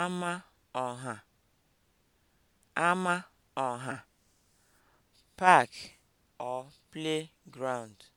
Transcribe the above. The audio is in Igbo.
ama ọha ama ọha park or playground